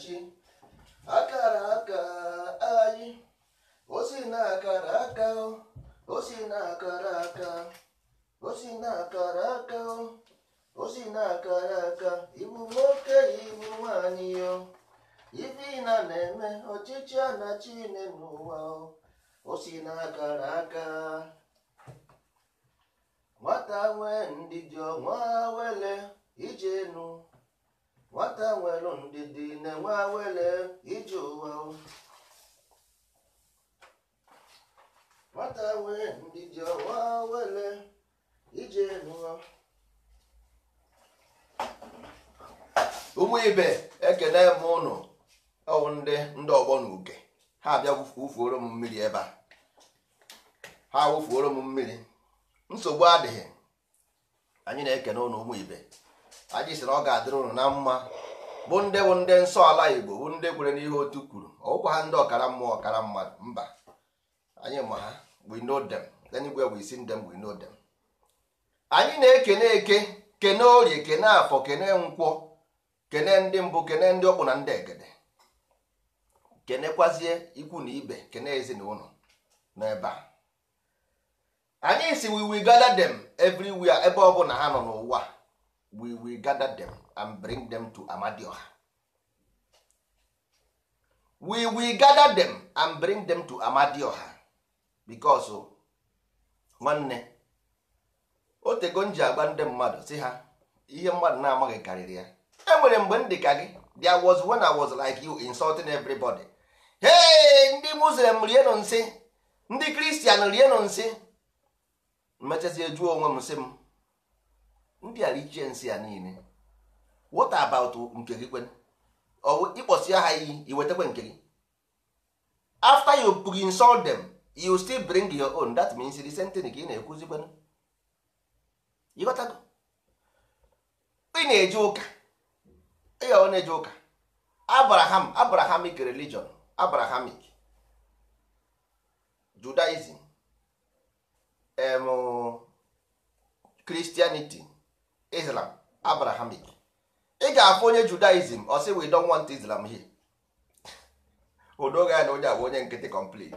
chi akara aka anyị osi na akara aka osi na akara aka osi na akara aka osi na akara aka ibu nwoke ibu nwanyị yo ife ịna na-eme ọchịchị a na chine n'ụwa osi na akara aka nwata nwee ndidi ọnwa wele nụ. nwata nwere ndidi na-enwe awele ije ụwa nwata nwere ndidi ọwa awele ije n'ụwa ụmụ ibe ekele m ụnụ ọwụ ndị ndị ọgbọ na uke ha abịa wụfuoro m mmiri ebe a ha wụfuoro m mmiri nsogbu adịghị anyị na-ekene ụnụ ụmụ ibe anyị sịrị ọ ga-adịrị ụnụ na mma bụ ndị bụ ndị nsọ ala igbo bụ ndị kwere n'ihe otu kwuru ọgwụkwa ha ndị ọkara mmụọ ọkara mmadụ mba anyị ma ha we know them anywhere we see anyị na-ekene eke kene orie kene afọ kene nkwọ kene ndị mbụ kene ndị ọkpụ na ndị egede kenekwazie ikwu na ibe kene ezinụlọ n'ebe anyị si we gather them everywhere ebe ọ bụla ha nọ n'ụwa we will gather them and bring them to amadioha we will gather them and bring them to amadioha because oh, nwanne o m ji agba ndị mmadụ si ha ihe mmadụ na-amaghị karịrị ya enwere mgbe ndị ka gị there was when i was like you insulting everybody hey ndị muslim rienụ nsị ndị kristian rienụ nsị mmechazie juo onwe m nsị m ndị a ichie nsị ya niile what about nke gị kwen ịkpọsi ha iyi iwetakwa nke gị after you bring insult them you still bring your own that means the same thing ka ị na-ekwuzi kwenu ịghọtago ị na-eje ụka ọ na-eje ụka abraham abrahamic religion abrahamic judaism em christianity islam abrahamic ị ga-afụ onye judaism ọ sị we don want islam here odoga ya na onye a bụ onye nkịtị complete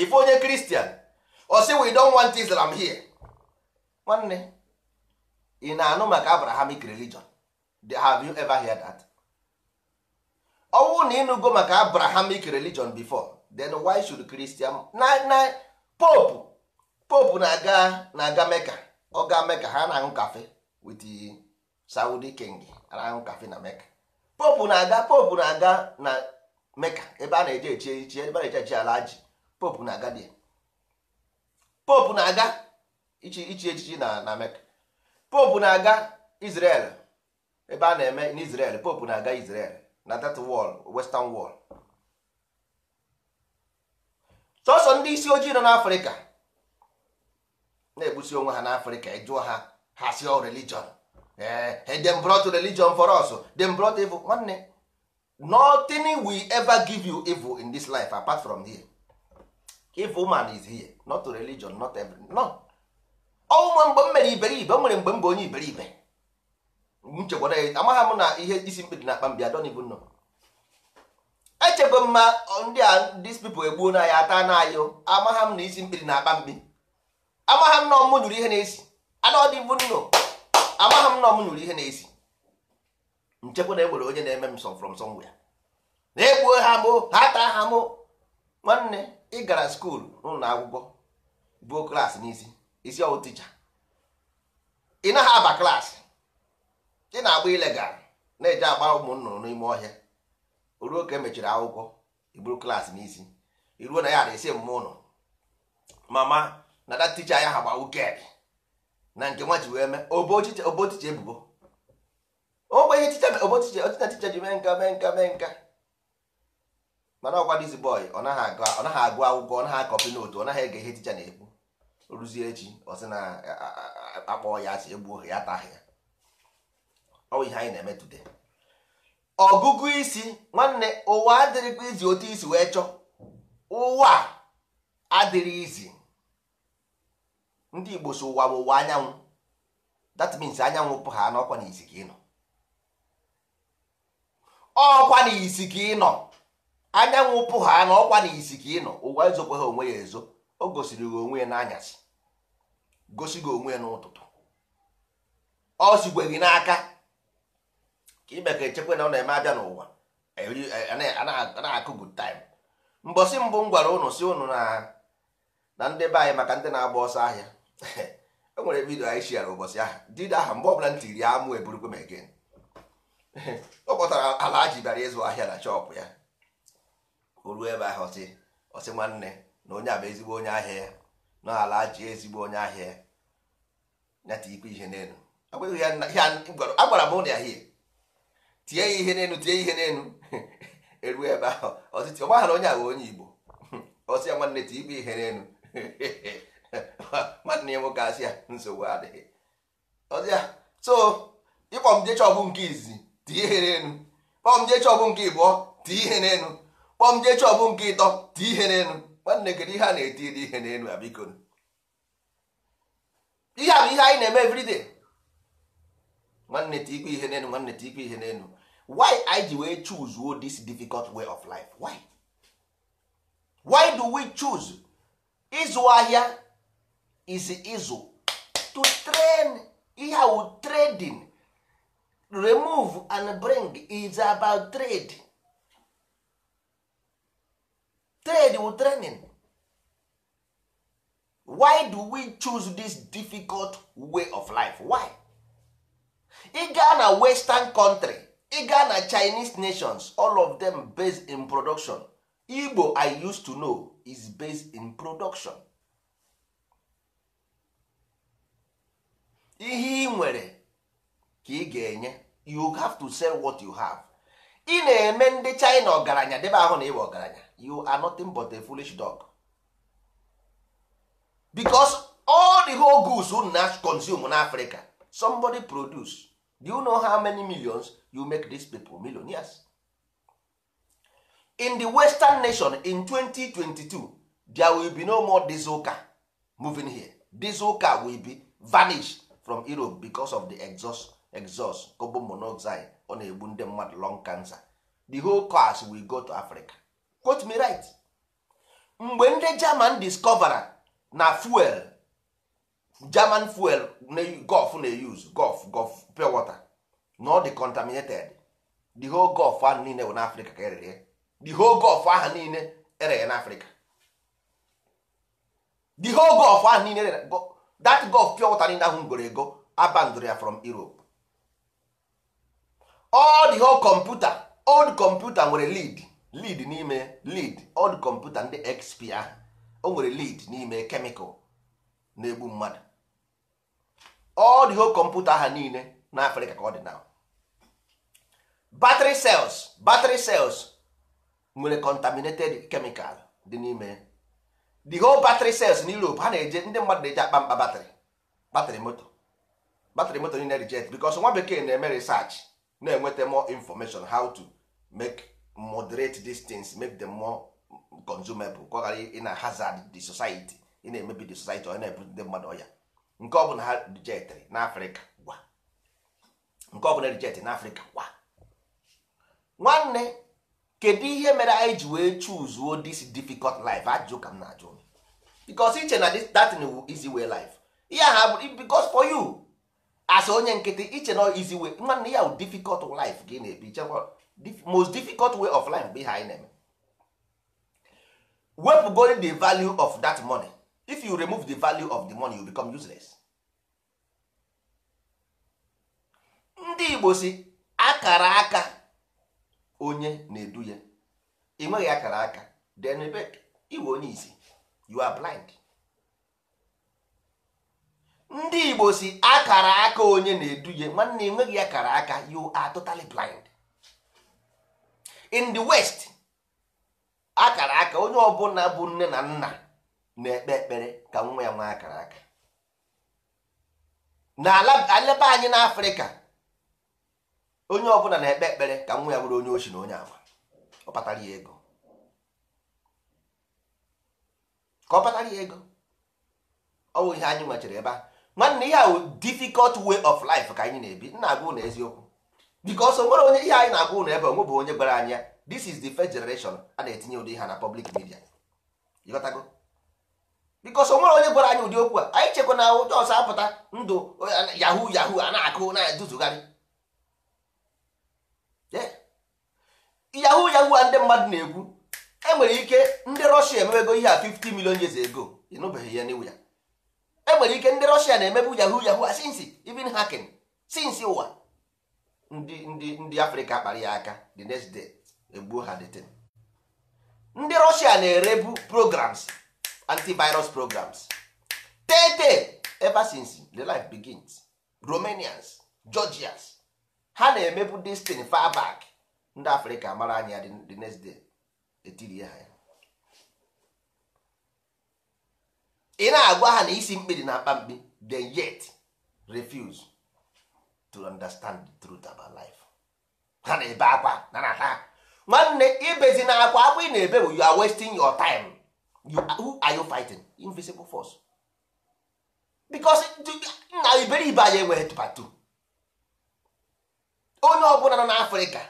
ife onye kristian ọ sị we don want islam here nwanne ị na-anụ maka abrahamic religion have you ever heard that ọnwụ na ịnụgo maka abrahamic religion before then why should christian na na pope pope na-aga na-aga meka ọ ga-eme ka ha na-aṅụ kafe with Saudi king na-aṅụ kafe na Mecca popu na-aga popu na-aga na Mecca ebe a na-eje echi echi ebe a na-eje echi ala ji popu na-aga dị popu na-aga ichi echichi na na Mecca popu na-aga Israel ebe a na-eme n'Israel popu na-aga Israel na that wall western wall sọsọ ndị isi ojii nọ n'Afrịka na-egbusi onwe ha n'afrịka ịjụọ ha ha si ọ oh, religion ee eh, dem brought religion for us dem brought evil nwanne nothing will ever give you evil in this life apart from here evil man is here not religion not everything no ọnwa mgbe m mere iberibe o nwere mgbe m bụ onye iberibe nchekwara ya amagha m na ihe isi mkpi dị na akpa mbịa don even know m mma ndị a ndị people egbuo na ya ata na ayụ amagha m na isi mkpi dị na akpa mkpi amaghị m na ọmụ nyụrụ ihe n'esi amaghị m na ọmụ nyụrụ ihe na n'esi nchekwa na egbere onye na-eme m so from somewhere na-egbuo ha mụ ha taa ha mụ nwanne ị gara skuul n'ụlọ akwụkwọ buo klaasị n'isi isi ọwụ tija ị naghị aba klaasị ị na-agba ilegal na-eje agba ụmụ nnụnụ n'ime ọhịa ruo ka emechiri akwụkwọ iburu klaasị n'isi iruo na ya ara isi mmụọ ụlọ mama na that teacher ya ha gba wuked na nke nwa ji wee mee obo ticha ebubo ogbe ihe ticha obo ticha otina ticha ji mee nka mee nka mee nka mana ọkwa dizi boy ọ naghị agụ akwụkwọ ọ naghị akọpi n'otu ọ naghị ege ihe ticha na-ekwu ruzie echi ọ sị na akpọ ya asị egbuo ya taghị ya ọ ihe anyị na-eme today ọgụgụ isi nwanne ụwa adịrịkwa izi otu isi wee chọọ ụwa adịrị izi ndị igbo so ụwa bụ ụwa anyanwụ that means anyanwụ pụ ha n'ọkwa na ka ị ọkwa n'isi ka ị nọ anyanwụ pụ ha n'ọkwa na ka ị nọ ụwa ezokwa ha onwe ya ezo o gosiri gị onwe ya n'anyasị gosi gị onwe ya n'ụtụtụ ọ sikwe gị n'aka ka ime ka echekwa na ọ na-eme abịa n'ụwa e, na-akụ good mbọsị mbụ m gwara ụnụ si ụnụ na ndị be anyị maka ndị na-agba ọsọ ahịa e nwere vidio anyị shia ụbọchị ahụ dida aha mgbe ọbụla ntị ya amụ eburukwe m egen ọ kpọtara ala ji bịara ịzụ ahịa na chọpụ ya o ruo ebe ahụ ọsị ọsị nwanne na onye a bụ ezigbo onye ahịa ya na ala ji ezigbo onye ahịa ya nyata ikpe ihe n'elu agbara m ụlọ ya hie tie ya ihe n'elu tie ihe n'elu eruo ebe ahụ ọsị ọgbaghara onye ahụ onye igbo ọsị ya nwanne tie ikpe ihe n'elu nwanne ya nwoke asị ya nsogbu adịghị ọzịa so ịkpọ m jee nke izizi tie ihe n'elu kpọọ m jee nke ịbụọ tie ihe n'elu kpọọ m jee nke ịtọ tie ihe n'elu nwanne kedu ihe a na-etiri ihe n'elu abiko ihe a bụ ihe anyị na-eme everyday nwanne tikwe ihe n'elu nwanne tikwe ihe n'elu why i ji wee choose this difficult way of life why why do we choose ịzụ ahịa is ịzụ to train ihe wu trading remove and bring is about trade trade wu training why do we choose this difficult way of life why ị gaa na western country ị ga na chinese nations all of them based in production igbo i used to know is based in production ihe ị nwere ka ị ga-enye you have to sell what you have ị na-eme ndị China ọgaranya debe ahụ na ịwa ọgaranya you are nothing but a foolish dog because all the whole goods unu na consume na Africa somebody produce do you know how many millions you make this people millionaires in the western nation in 2022 there will be no more diesel car moving here diesel car will be vanished from europe because of the exhaust exhaust carbon monoxide ọ na-egbu ndị mmadụ lung cancer the whole class we go to africa quote me right mgbe ndị german discover na fuel german fuel gulf na-use gulf gulf pure water na ọ dị contaminated the whole gulf ahụ niile na africa ka erere the whole gulf ahụ niile e ere na africa the whole gulf ahụ niile e that gulf pure water niile ahụ goro ego ya from Europe all the whole computer old computer nwere lead lead n'ime lead old computer ndị XP ahụ o nwere lead n'ime chemical na-egbu mmadụ all whole computer ha niile na Afrịka ka ọ dị now battery cells battery cells nwere contaminated chemical dị n'ime the whole battery cells in Europe ha na-eje ndị mmadụ na-eje akpa mkpa batrị batrị moto batrị moto niile reject because nwa bekee na-eme research na-enweta more information how to make moderate these things make them more consumable ka ọ ghara ị na hazard the society ị na-emebi the society ọ na-ebu ndị mmadụ ọya nke ọ bụla ha rijetịrị n'afrịka gwa nke ọ bụla rijetị n'afrịka gwa nwanne kedu ihe mere anyị ji wee chuzuo this difficult life ajụ ka m na-ajụ because iche na that easy way life ihe ha bụ because for you as onye nkịtị iche na easy way nwanne ya difficult life gị na-ebi chekwa most difficult way of life bụ ihe anyị na-eme wepụgoro the value of that money if you remove the value of the money you become useless ndị Igbo si akara aka onye na-edu ya ị nweghị akara aka then ebe iwe onye isi you are blind ndị igbo si akara aka onye na-eduhie nwanne enweghị akara aka you are totally blind in the west akara aka onye ọbụla bụ nne na nna na-ekpe ekpere ka nwa ya nwee akara aka n'ala anyị n'afrịka onye ọbụla na-ekpe ekpere ka nwa ya nwere onye ochi na onye ama ọ kpatara ya ego ka ọ kpatara ya ego ọ ihe anyị nwechara ebe a nwanne ya bụ difficult way of life ka anyị na-ebi nna agụ na eziokwu because onwere nwere onye ihe anyị na-agụ ụlọ ebe onwe bụ onye gwara anyị ya this is the first generation a na-etinye ụdị ha na public media ịghọtago because onwere nwere onye gwara anyị ụdị okwu a anyị chekwa na ụjọ ọsọ apụta ndụ yahoo yahoo a na-akụ na-eduzugharị yahoo yahoo a ndị mmadụ na-ekwu enwere ike ndị rọshia emebego ihe a 50 million years ago ịnụbeghị ya n'iwu ya enwere ike ndị rọshia na-emebu yahoo yahoo since even hacking since ụwa ndị ndị ndị afrịka kpara ya aka the next day egbuo ha deten ndị rọshia na-erebu programs antivirus programs tete ever since the life begins romanians georgians ha na-emebu this thing ndị afrịka mara anya the next day etirie ha ya ị na-agwa ha na isi mkpidi na-akpa mkpi they yet refuse to understand the truth about life ha na-ebe akwa na na ha nwanne ibezi na akwa akwa ị na-ebe bụ you are wasting your time you, who are you fighting invisible force because na iberibe anyị enweghị tụpatụ onye ọ bụla nọ n'afrịka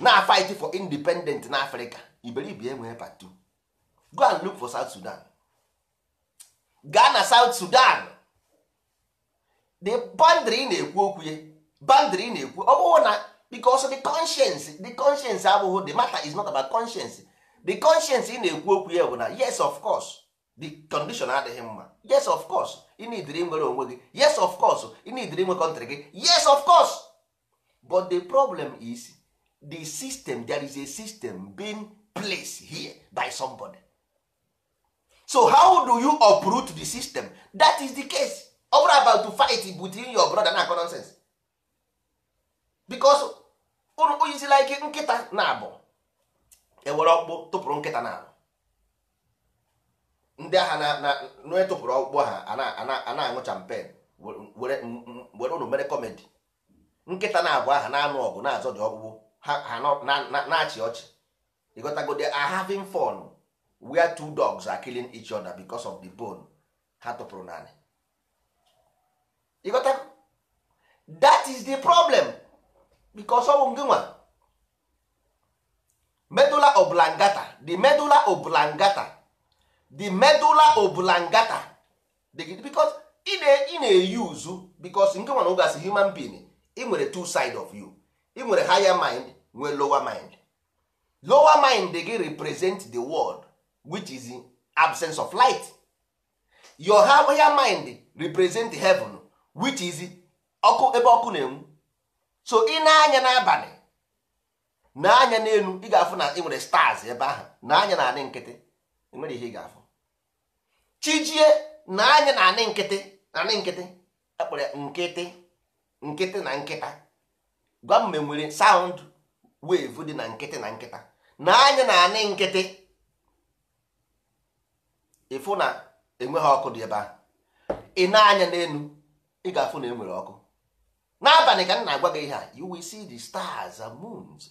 na-afight for independent n'afrịka iberibe enweghị eh, part go and look for south sudan gaa na south sudan the in na-ekwu okwu boundary in na-ekwu ọ bụrụ na because the conscience the conscience abụghị oh, oh, the matter is not about conscience the conscience ị na-ekwu okwu ya bụ na yes of course the condition adịghị mma yes of course ị na nwere onwe gị yes of course ị na-ediri nwe kọntrị gị yes of course but the problem is the system there is a system being place here by somebody so how do you uproot the system that is the case over about to fight between your brother na nonsense because unu oyizila ike nkịta na-abụ ewere ọkpụ tụpụrụ nkịta na-abụ ndị agha na-etụpụrụ ọkpụ ha a na-aṅụ champen were unu mere kọmedi nkịta na-abụ aha na-anụ ọgụ na-azọ dị ọkpụkpụ ha na-achị ọchị they go they are having fun where two dogs are killing each other because of the bone ha tụpụrụ naanị ịghọtago that is the problem because ọ bụ gị nwa medulla oblongata the medulla oblongata the medulla oblongata because ị na-eyuzu because nke nwa na oge asị human being ị nwere two side of you ị nwere higher mind nwee lower mind lower mind gị represent the world which is absence of light your higher mind represent heaven which is ọkụ ebe ọkụ na-enwu so ị na-anya n'abalị na-anya n'elu ị ga-afụ na ị nwere stars ebe ahụ na-anya na anị nkịtị emere ihe ị ga-afụ chijie na-anya na anị nkịtị na anị nkịtị ekpere nkịtị nkịtị na nkịta gwa m sound wave dị na nkịtị na nkịta na anya na-anị nkịtị ịfụ na enweghị ọkụ dị ebe a ị na-anya n'elu ị ga-afụ na enwere ọkụ n'abalị ka m na-agwa gị ihe a you will see the stars and moons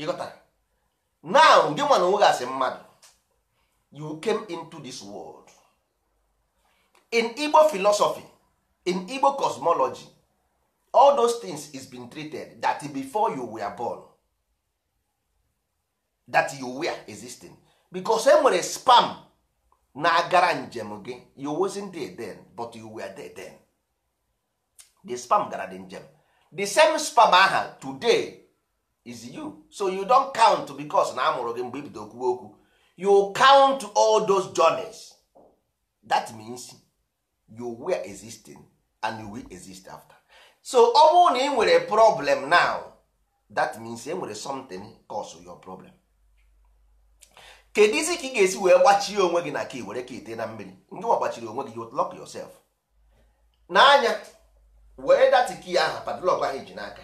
ịghọta now gị nwanyị na onwe gasị mmadụ you came into this world in Igbo philosophy in Igbo cosmology all those things is been treated that before you were born that you were existing because e nwere spam na-agara njem gị you wasn't there then but you were there then the spam gara the njem the same spam aha today is you so you don count because na amụrụ gị mgbe ibido okwuwe okwu you count all those journeys that means you were existing and you will exist after. so ọ bụrụ na ị nwere problem now that means e nwere something cause your problem kedu isi ka ị ga-esi wee gbachie onwe gị na ka were ka ite na mmiri ndị wa gbachiri onwe gị you lock yourself n'anya wee dati key ahụ padlock ahụ ji n'aka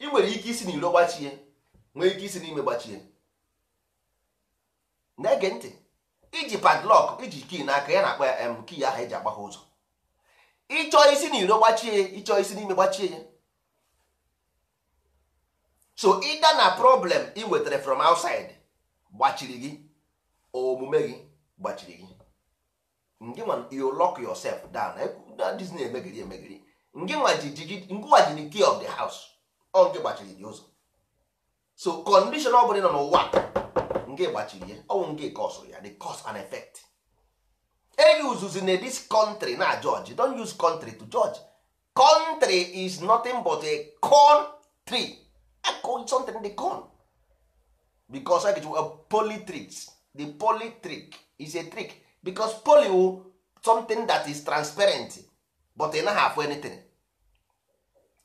ị nwere ike isi n'iro gbachie nwee ike isi n'ime gbachie na-ege ntị iji padlock iji key n'aka ya na-akpa ya kii ahụ eji agbagha ụzọ ịchọ isi na iro gbachie ya ịchọ isi n'ime gbachie ya so ịda na problem ị nwetara from outside gbachiri gị omume gị gbachiri gị ngị nwa you lock yourself down this disney emegiri emegiri ngị nwa ji the key of the house ọ nke gbachiri gị ụzọ so condition ọ bụla nọ n'ụwa nke gbachiri ya ọnwụ nke kọsụ ya the cause and effect eyuzuzi na this country na judge don't use country to judge country is nothing but a corn tree something the corn because I a poly tricks the poly trick is a trick because poly wu oh, something that is transparent but e naghị afụ anything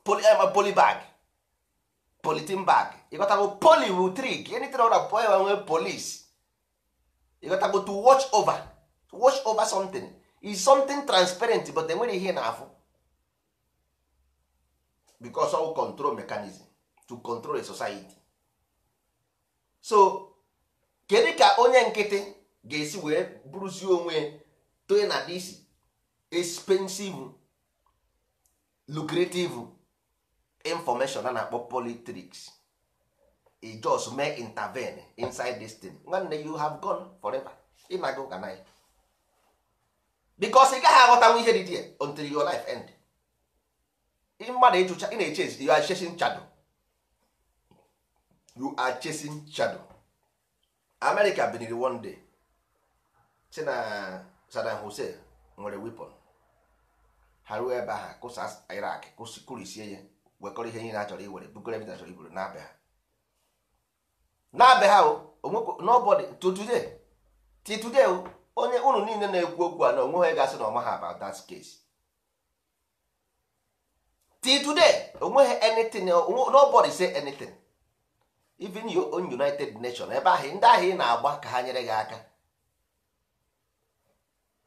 poly, uh, poly bag politin bag ịgotago poly wu trick anything ọra poly nwe police ịgotago to watch over wash over something is something transparent but enwere ihe na-afụ because of control mechanism to control a society so kedu ka onye nkịtị ga-esi wee bụrụzie onwe toye na this expensive lucrative information a na-akpọ politrics e just make intervene inside this thing nwanne you have gone forever ịnaga ụka na ya because ị gaghị aghọtanwu ihe dị dị until your life end mmadụ ịchụcha ị na-eche ezite you are chasing shadow you are chasing shadow America biniri one day si na Saddam Hussein nwere weapon ha ruo ebe ha kụsa Iraq kụrisie ya wekọrọ ihe niile a chọrọ iwere bugoro ebe chọrọ iburu n'abe ha n'abe ha nobody to today till today onye ụnụ niile na-ekwu okwu a na onwe ha gasị na ọma ha about that case till today onweghị anything nobody say anything even your own united nation ebe ahụ ndị ahụ ị na-agba ka ha nyere gị aka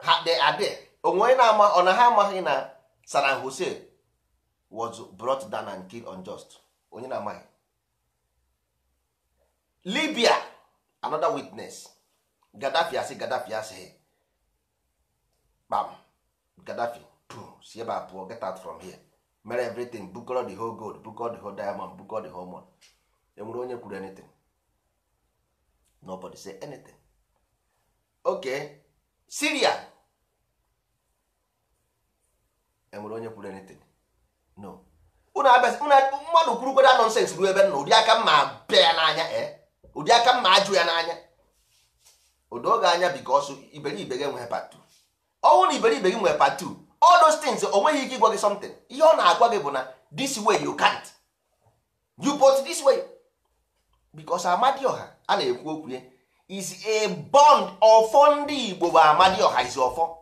ha dị adị onwe na-ama ọ na ha amaghị na Saddam Hussein was brought down and killed unjust onye na-amaghị Libya another witness Gaddafi asị Gaddafi asị kpam Gaddafi pu si ebe a pụọ get out from here mere everything bukọrọ the whole gold bukọrọ the whole diamond bukọrọ the whole money enwere onye kwuru anything nobody say anything okay Syria enwere onye kwuru anything no mmadụ kwurukwara nonsens ruo ebe nna ụdị aka mma bịa ya n'anya eh? ụdị aka mma ajụ ya n'anya odo oge anya because iberibe gị nwere part 2 ọnwụ na iberibe gị nwere 2 all those things o nweghị ike ịgwa gị something ihe ọ na-agwa gị bụ na this way you can't you put this way because ọha, a na-ekwu okwu ya is a bond ọfọ ndị Igbo bụ ọha is ọfọ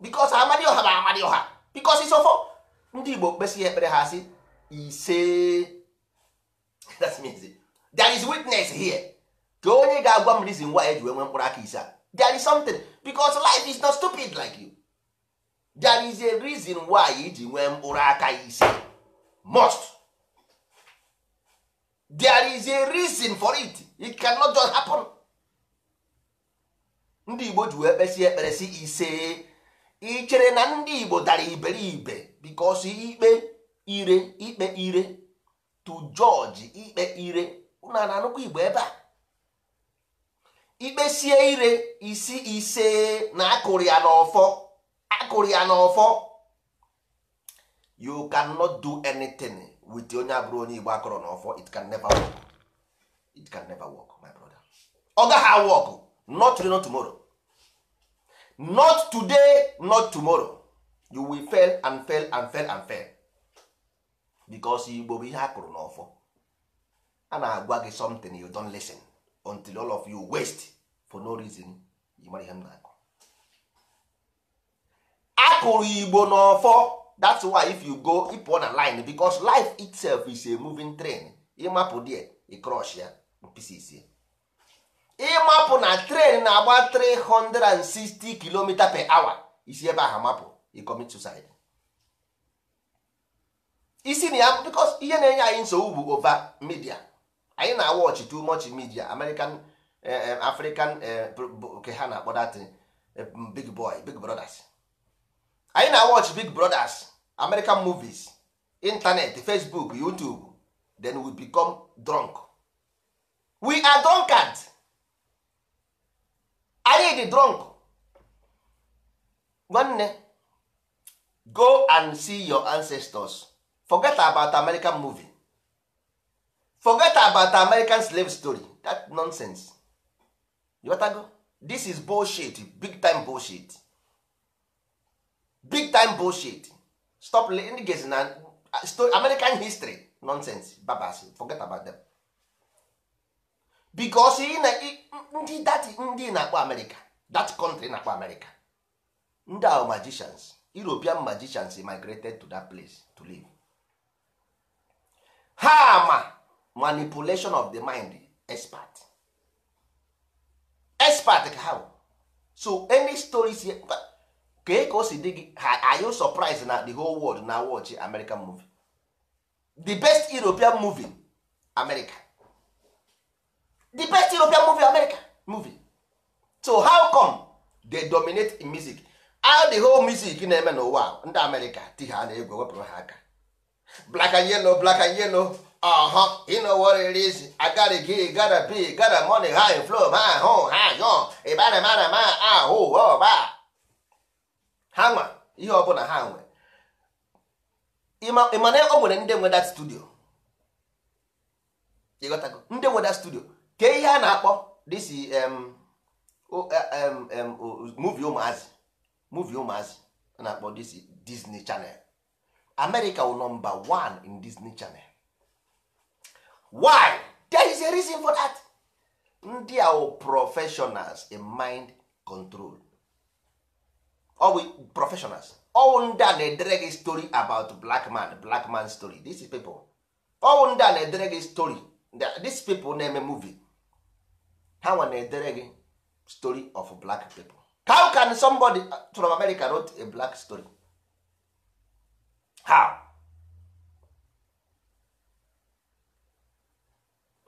because ọha bụ ọha, because is ọfọ ndị Igbo kpesị ya ekpere ha si ise that's means there is witness here ka onye ga-agwa m reason why eji wee nwee mkpụrụ aka ise there is something because life is not stupid like you there is a reason why iji e nwee mkpụrụ aka ise must there is a reason for it it cannot just happen ndị Igbo ji wee kpesi ekpere si ise ị chere na ndị Igbo dara iberibe because ikpe ire ikpe ire to George ikpe ire ụnụ na-anụkwa Igbo ebe a ikpesie ire isi ise na akụrụ ya n'ọfọ akụrụ ya n'ọfọ you cannot do anything with onye abụrụ onye igbo akụrụ n'ọfọ it can never work it can never work my brother ọ gaghị work not today not tomorrow not today not tomorrow you will fail and fail and fail and fail because igbo bụ ihe akụrụ n'ọfọ a na-agwa gị something you don't listen until all of you waste for no reason you mara ihe m na-akụ akụrụ igbo n'ọfọ that's why if you go ịpụọ na line because life itself is a moving train ịmapụ die ịcrosh ya pieces ịmapụ na train na-agba 360 km per hour isi ebe ahụ mapụ ịcommit suicide isi na ya because ihe na-enye anyị nsogbu bụ over media anyị na-awọchị too much media American eh, eh, African eh, ke ha na-akpọ mm, big boy big brothers anyị na watch big brothers American movies internet Facebook YouTube then we become drunk we are drunkard anyị dị drunk nwanne go and see your ancestors forget about American movie forget about american slave story that nonsense you go this is bullshit big time bullshit big time bullshit stop ndị gesi na uh, story american history nonsense babas forget about them because na ndị that ndị na-akpọ america that country na-akpọ america ndị ahụ magicians european magicians migrated to that place to live ha ma manipulation of the mind expert expert ka how so any stories kee ka o si dị gị are you surprised na the whole world na watch American movie the best European movie America the best European movie America movie so how come they dominate in music how the whole music na-eme n'ụwa ndị America ti ha na-egwu wepụrụ ha aka black and yellow black and yellow Ọhụ huh You know what it is. I gotta get, gotta be, gotta money, high flow, my ah, home, high on. Ịbara mara ma ahụ ọba. Ha nwa ihe ọbụla ha nwe. Ịma na o nwere ndị nwe that studio. Ịghọtago ndị nwe that studio. Kee ihe a na-akpọ this um, o eh, um, um movie ụmụazị. Movie ụmụazị a na-akpọ this Disney Channel. amerika wụ number one in Disney Channel. why there is a reason for that ndị a professionals in mind control ọwụ professionals ọwụ ndị a na-edere gị story about black man black man story these people ọwụ ndị a na-edere gị story these people na-eme movie ha nwa na-edere gị story of black people how can somebody uh, from America write a black story how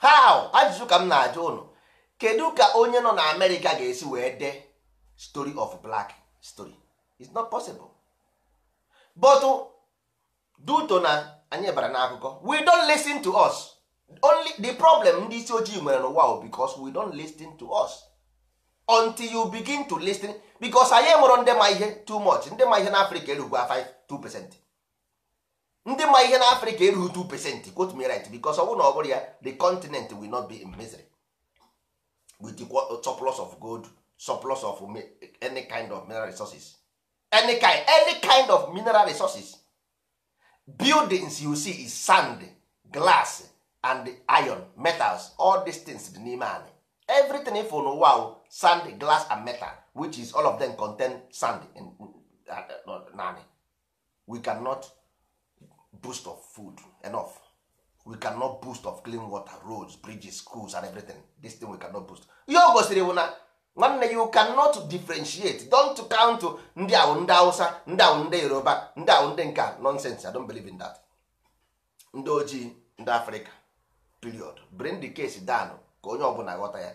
how ajụjụ ka m na-ajụ ụnụ kedu ka onye nọ na amerịka ga-esi wee dee story of black story it's not possible but duto na anyị bara n'akụkọ we don listen to us only the problem ndị isi ojii nwere n'ụwa because we don listen to us until you begin to listen because anyị enwero ndị ma ihe too much ndị ma ihe n'afrịka erugwa 5 2 percent ndị ma ihe na afrịka erughị 2 percent quote me right because ọ bụrụ na ọ bụrụ ya the continent will not be in misery with uh, surplus of gold surplus of any kind of mineral resources any kind, any kind of mineral resources buildings you see is sand glass and iron metals all these things dị n'ime anyị everything ifo n'ụwa sand glass and metal which is all of them contain sand in, uh, uh we cannot boost of food enough we cannot boost of clean water roads bridges schools and everything this thing we cannot boost ihe o gosiri bụ na nwanne you cannot differentiate don't count ndị awụ ndị hausa ndị awụ ndị yoruba ndị awụ ndị nka nonsense i don't believe in that ndị ojii ndị africa period bring the case down ka onye ọbụla ghọta ya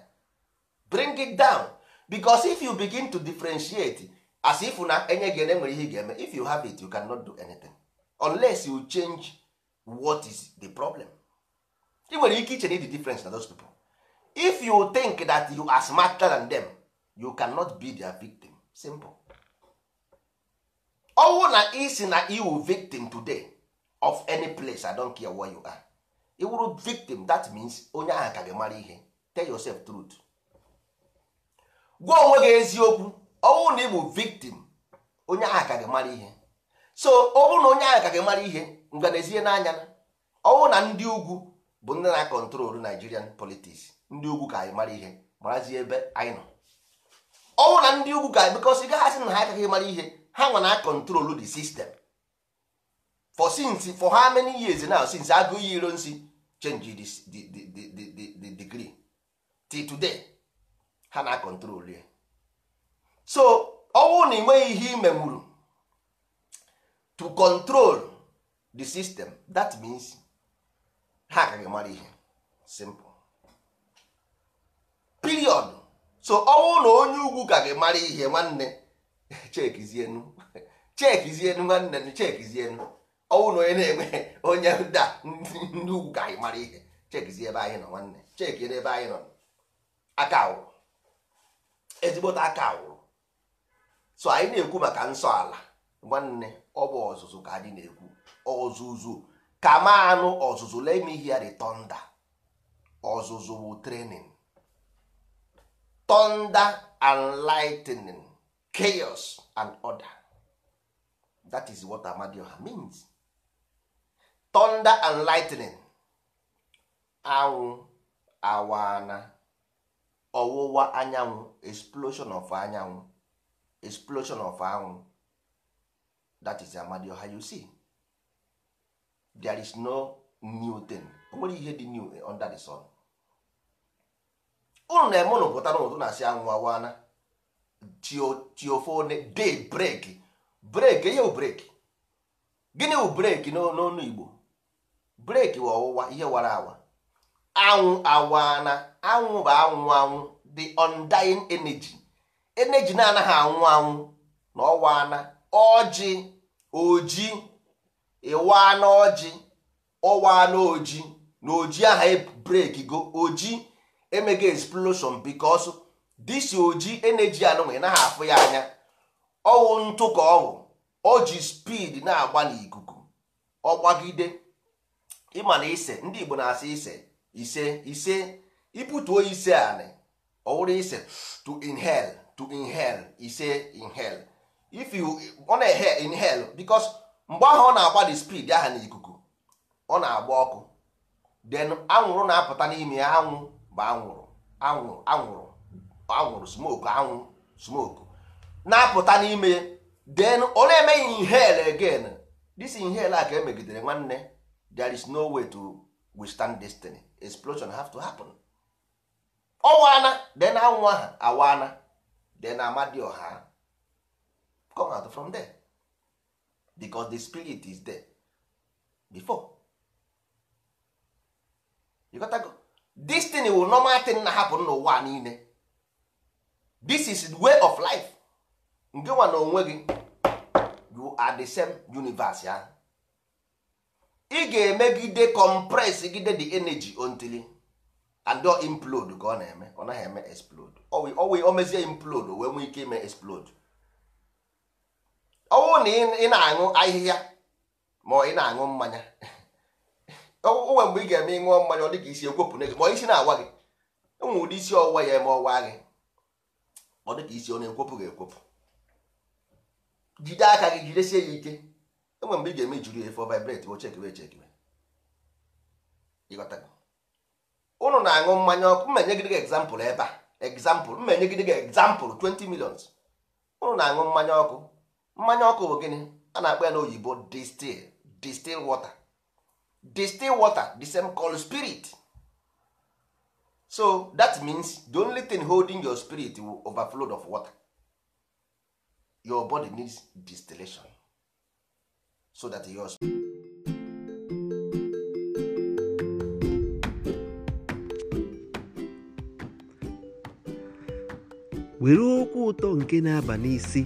bring it down because if you begin to differentiate as if na enye gị enwere ihe ga-eme if you have it you cannot do anything. unless you change what is the problem i nwere ike iche the difference na those people if you think that you are smarter than them you cannot be their victim simple ọnwụ na isi na iwu victim today of any place i don't care where you are iwuru victim that means onye ahụ ka gị mara ihe tell yourself truth gwa onwe gị eziokwu ọnwụ na ịbụ victim onye ahụ ka gị mara ihe so ọ bụrụ na onye ahụ ka gị mara ihe nganaezie n'anya na ọnwụ na ndị ugwu bụ ndị na-akọntrolu Nigerian politics ndị ugwu ka anyị mara ihe marazie ebe anyị nọ ọnwụ na ndị ugwu ga anyị because gaghị na ha agaghị mara ihe ha nwa na akọntrolu the system for since for how many years now since agụ iyi iro nsi change the, the, the, the, the degree till today ha na akọntrolu ya so ọnwụ na ị nweghị ihe imemuru to control the system that means ha ka gị mara ihe simple period so ọnwụ na onye ugwu ka gị mara ihe nwanne chekizienu chekizienu nwanne chekizienu ọnwụ na onye na-enwe onye da ndị ugwu ka gị mara ihe chekizie ebe anyị nọ nwanne cheki ebe anyị nọ aka awụrụ ezigbote aka awụrụ so anyị na-ekwu maka nsọ ala nwanne ọ bụ ọzụzụ ka anyị na-ekwu ọzụzụ kama anụ ọzụzụ let me hear ọzụzụ bụ training tọnda and lightning chaos and order that is what amadioha means tọnda and lightning anwụ awana ọwụwa anyanwụ explosion of anyanwụ explosion of anwụ that is ọha you see there is no new thing o nwere ihe dị new under the sun unu na-eme ụnụ pụta n'ụtụ na-asị anwụ awana tiofone day break break ihe break gịnị bụ break n'ọnụ Igbo break ọwụwa ihe wara awa anwụ awana anwụ bụ anwụ anwụ the undying energy energy na-anaghị anwụ anwụ na ọwa ana ọjị oji ịwa n'ọjị ọwa n'oji na oji aha e break go oji emega explosion because disi oji energy anụnwa na afụ ya anya ọwụ ntụ ka ọwụ o ji speed na-agba n'ikuku ọgbagide ịma na ise ndị Igbo na-asị ise ise ise ibutuo ise anị ọwụrụ ise to inhale to inhale ise inhale if you ọ na-ehe inhale because mgbe ahụ ọ na-agba the speed aha n'ikuku ọ na-agba ọkụ then anwụrụ na-apụta n'ime ya anwụ bụ anwụrụ anwụrụ anwụrụ anwụrụ smoke anwụ smoke na-apụta n'ime then ọ na-eme inhale again this inhale a ka emegidere nwanne there is no way to withstand destiny explosion have to happen ọ waana then anwụ aha awaana then ọha. come out from there because the spirit is there before you to go this thing will normal thing na happen n'ụwa niile this is way of life nke nwa na onwe gị you are the same universe ya ị ga-emegide compress gide the energy until and implode ka ọ na-eme ọ naghị eme explode o mezie implode o wee nwee ike ime explode ọ na ị na-aṅụ ahịhịa ma ị na-aṅụ mmanya onwe mgbe ị ga-eme ịṅụọ mmanya ọ dị isi n'ego ma na-awa gị e isi ya eme ọwa gị ọ dịka isi ọ na gị jide aka gị jidesie ya ike enwe mgbe ị ga-eme efe vibrate ụnụ na-aṅụ mmanya ọkụ gị egzampụl ebe a egzampụl mmenye gị egzampụl 20 ụnụ na-aṅụ mmanya ọkụ mmanya ọkụ bụ gịnị a na-akpọ ya n'oyibo distil distil water distil water the same called spirit so that means the only thing holding your spirit will overflow of water your body needs distillation so that your were okwu ụtọ nke na-aba n'isi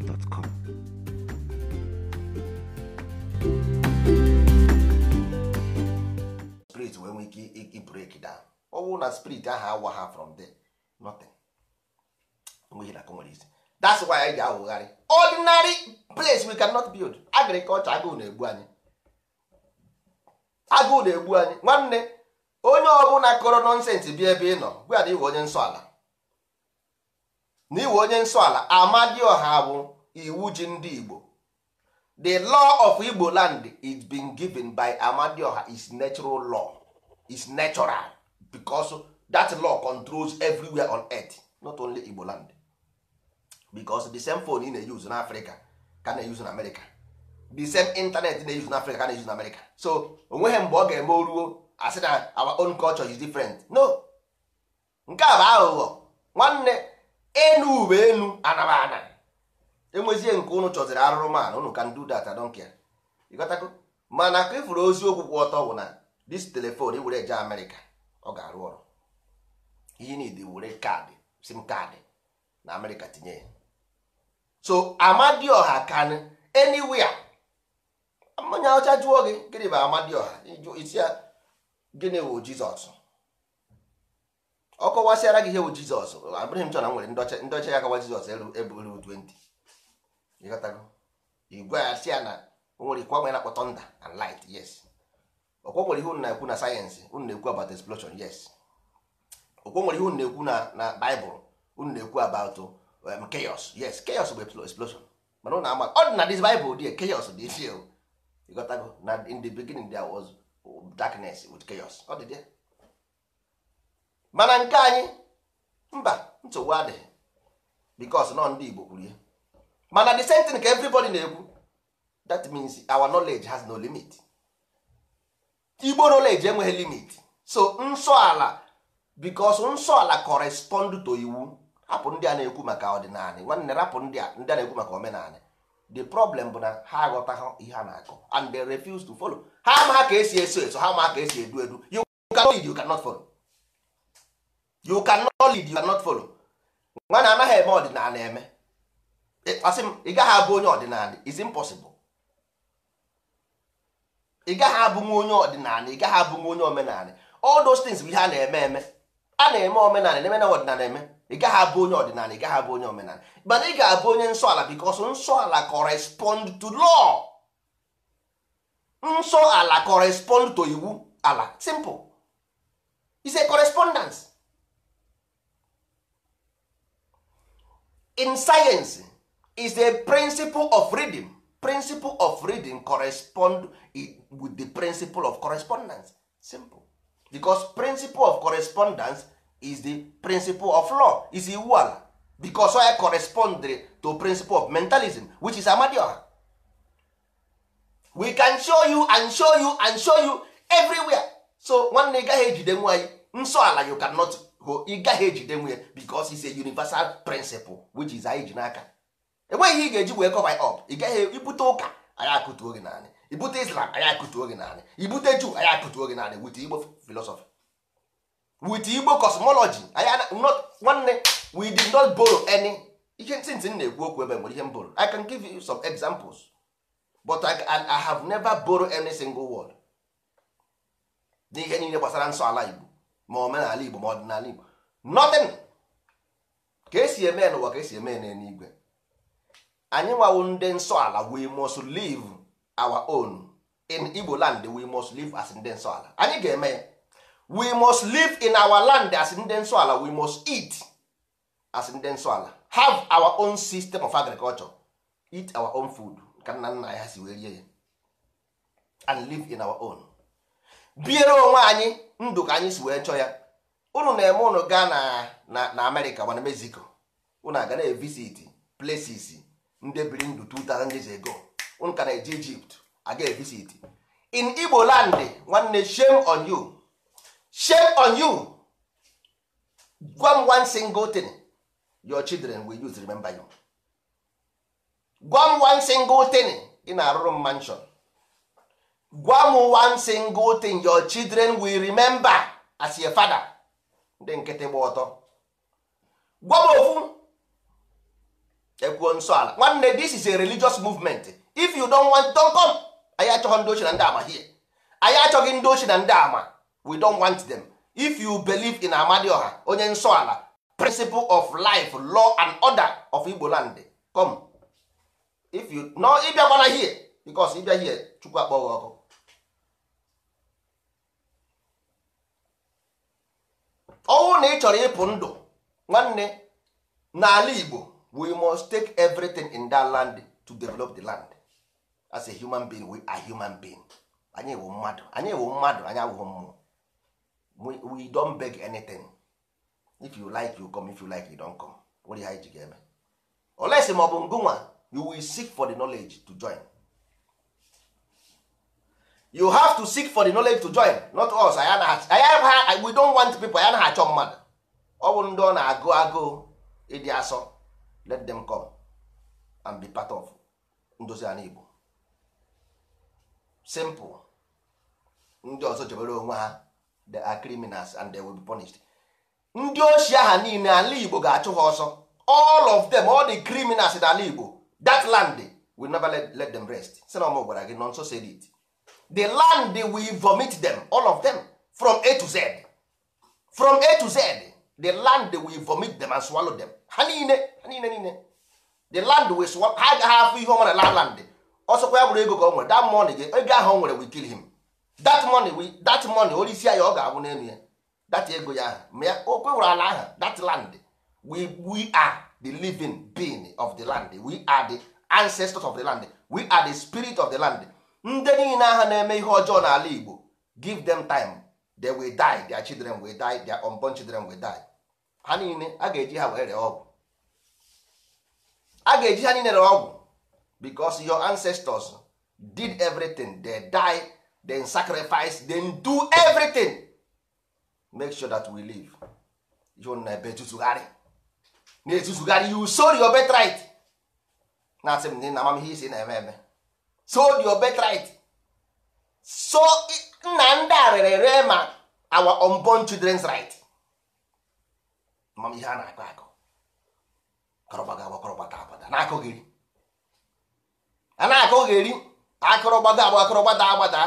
www.spirit.com spirit wee nwee ike ibreak down ọ na spirit ahụ awa ha from there nothing nwere isi that's why anyị ji awụgharị ordinary place we cannot build agriculture agụụ na-egbu anyị agụụ na-egbu anyị nwanne onye ọbụla kọrọ nọnsensị bi ebe ị nọ gwa na iwe onye nsọ ala na iwe onye nsọ ala amadioha bụ iwu ji ndị igbo the law of igbo land is been given by amadioha is natural law is natural because that law controls everywhere on earth not only igbo land because the same phone ị na-use na africa ka na-use na america the same internet na-use na africa ka na-use na america so onweghị mgbe ọ ga-eme oruo asị na our own culture is different no nke a bụ aghụghọ nwanne enu uwe enu anabana enwezie nke ụnụ chọziri arụrụmanụ ụnụ ka do data donkia don't mana ka ifuru e ozi okwu ọtọ bụ na dis telefon iwere eje Amerịka ọ ga-arụ ọrụ ihe niile were kaadị sim kaadị na Amerịka tinye ya so Amadioha can anywhere mmanya ọcha jụọ gị gịnị bụ Amadioha isi ya gịnị wụ Jizọs ọ kọwasịara gị ihe bụ jizọs abụghị m chọrọ nwere ndọcha ndọcha ya kawa jizọs eburu 20 ịghọtago igwe ya si ya na nwere ikwa na akpọ thunder and light yes ọkwa nwere ihe unu na-ekwu na sayensị unu na-ekwu about explosion yes ọkwa nwere ihe unu na-ekwu na na baịbụl unu na-ekwu about um, chaos yes chaos bụ explosion mana unu ama ọ dị na this baịbụl dị chaos dị isi ịghọtago na in the beginning there was darkness with chaos ọ dị there mana nke anyị mba nsogbu adịghị because nọ ndị Igbo kwuru ya mana the same thing ka everybody na-ekwu that means our knowledge has no limit Igbo knowledge enweghị limit so nsọ ala because nsọ ala correspond to iwu hapụ ndị a na-ekwu maka ọdịnala nwanne rapụ ndị a ndị a na-ekwu maka omenala the problem bụ na ha aghọtaghị ihe a na-akọ and they refuse to follow ha ama ka esi eso eso ha ama ka esi edu edu you cannot follow you cannot lead you can cannot follow nwana anaghị eme ọdịnala eme asị m ị gaghị abụ onye ọdịnala is impossible ị gaghị abụ nwa onye ọdịnala ị gaghị abụ nwa onye omenala all those things bụ ihe a na-eme eme a na-eme omenala na-eme ọdịnala eme ị gaghị abụ onye ọdịnala ị gaghị abụ onye omenala mana ị ga-abụ onye nsọala because nsọala correspond to law nsọ ala correspond to iwu ala simple is a correspondence in science is the principle of reading principle of reading correspond with the principle of correspondence simple becos principle of correspondence is the principle of law is iwu ala because I correspond to principle of mentalism which is amadioha we can show you and show you and show you everywhere so nwanne ị gaghị ejide nwa anyị nsọ ala you cannot ị gaghị ejide nwunye because is a universal principle which is anyị ji n'aka enweghị ihe ị ga-eji wee cover up ị gaghị ibute ụka anyị akụtuo gị naanị ibute islam anyị akụtuo gị naanị ibute juu anyị akụtuo gị naanị wit igbo philosophy wit igbo cosmology nwanne we did not borrow any ihe ntị m na-ekwu okwu ebe nwere ihe m borrow i can give you some examples but I, have never borrow any single word n'ihe niile gbasara nsọ ala igbo ma omenala igbo ma ọdịnala igbo nothing ka esi eme n'ụwa ka esi eme n'eluigwe anyị nwawo ndị nsọ ala we must live our own in igbo land we must live as ndị nsọ ala anyị ga-eme ya we must live in our land as ndị nsọ ala we must eat as ndị nsọ ala have our own system of agriculture eat our own food ka nna nna ha si wee rie ya and live in our own biere onwe anyị ndụ ka anyị si wee chọọ ya ụnụ na-eme ụnụ gaa na na amerịka mana mexico ụnụ aga na evisit places ndị biri ndụ 2000 years ago ụnụ ka na-eje egypt aga evisit in igbo land nwanne shame on you shame on you gwa m one single thing your children will use remember you gwa m one single thing ị na-arụrụ m mansion gwa m one single thing your children will remember as your father ndị nkịtị gba ọtọ gwa m ofu ekwuo nsọ ala nwanne this is a religious movement if you don want don come anyị achọghị ndị ochie na ndị ama here anyị achọghị ndị ochie na ndị ama we don want them if you believe in amadioha onye nsọ ala principle of life law and order of igbo land come if you no ịbịakwana here because ịbịa here chukwu akpọ gị ọkụ ọnwụ na ị chọrọ ịpụ ndụ nwanne n'ala Igbo we must take everything in that land to develop the land as a human being we are human being anyị wụ mmadụ anyị wụ mmadụ anyị abụghị mmụọ we don't beg anything if you like you come if you like you don't come were ha iji ga-eme olesi ma ọ bụ ngụnwa you will seek for the knowledge to join you have to seek for the knowledge to join not us anyị we don't want people ayana achọ mmadụ ọ bụ ndị ọ na-agụ agụụ ịdị asọ let them come and be part of ndozi ala Igbo simple ndị ọzọ jebere onwe ha they are criminals and they will be punished ndị ochie ha niile ala Igbo ga-achụ ha ọsọ all of them all the criminals in ala Igbo that land will never let, let them rest si na ọmụ gwara gị nọ nso said it the land will vomit them all of them from a to z from a to z the land will vomit them and swallow them ha niile ha niile niile the land will swallow ha agaghị afụ ihe ọma na la land ọsọkwa ya bụrụ ego ka ọ nwere that money gị ego ahụ nwere will kill him that money we that money onye isi ya ọ ga-abụ n'elu ya that ego ya ahụ ma ya o kwewere ala ahụ that land we we are the living being of the land we are the ancestors of the land we are the spirit of the land ndị niile aha na-eme ihe ọjọọ n'ala Igbo give them time they will die their children will die their unborn children will die ha niile a ga-eji ha were ọgwụ a ga-eji ha niile re ọgwụ because your ancestors did everything they die then sacrifice then do everything make sure that we live na ebe etuzugharị na-etuzugharị you sold your birthright na-asị m na amamihe isi na-eme eme sold your birthright so nna ndị a rere ere ma our unborn children's right mam ihe a na-akọ akọ kọrọgbaga agba kọrọgbata agbada na-akọ gị a na-akọ gị akọrọgbada agba akọrọgbada agbada